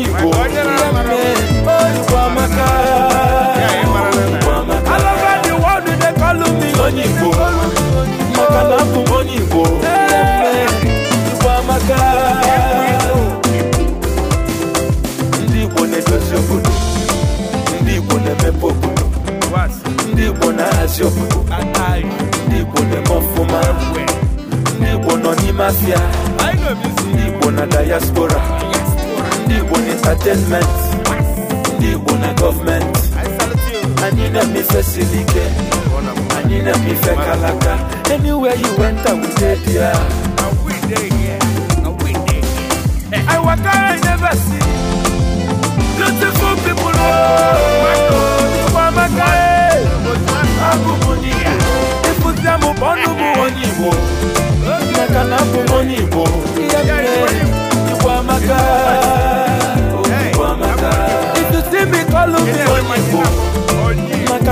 Igbo Igbo amaka world dey me onye Igbo maka na abụ m onye Igbo ndị Igbo na-edozi obodo ndị Igbo na-emepe obodo Igbo na-ahazi obodo Igbo na-eme ọfụma Igbo nọ n'ime afịa Igbo na diaspora ndị Igbo na entertainment ndị Igbo na gọọmenti anyị na-eme silike ike anyị na kalaka anywhere you went I will dey I waka oh. I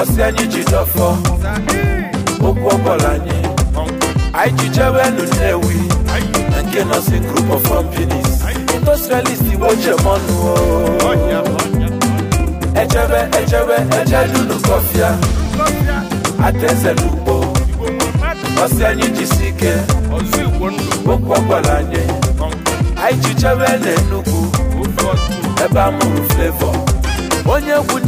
ọsị anyị ji dọfọ okwu ọbọla anyị anyị ji jewe nu nnewi na nke nọsi group of companies industrialist igbo jemọnụ ejebe ejebe ejedunu kọfịa adaeze n'ugbo ọsị anyị jisi ike okwu ọbọla anyị anyị ji jewe na Enugu ebe a mụrụ ebe onye egwu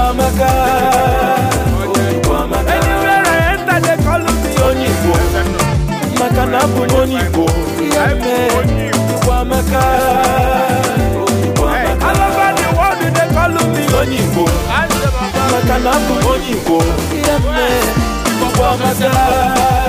Igboamaka anywhere I enter they call me onye Igbo maka na abụ onye ihe they call me onye Igbo maka na abụ m onye ihe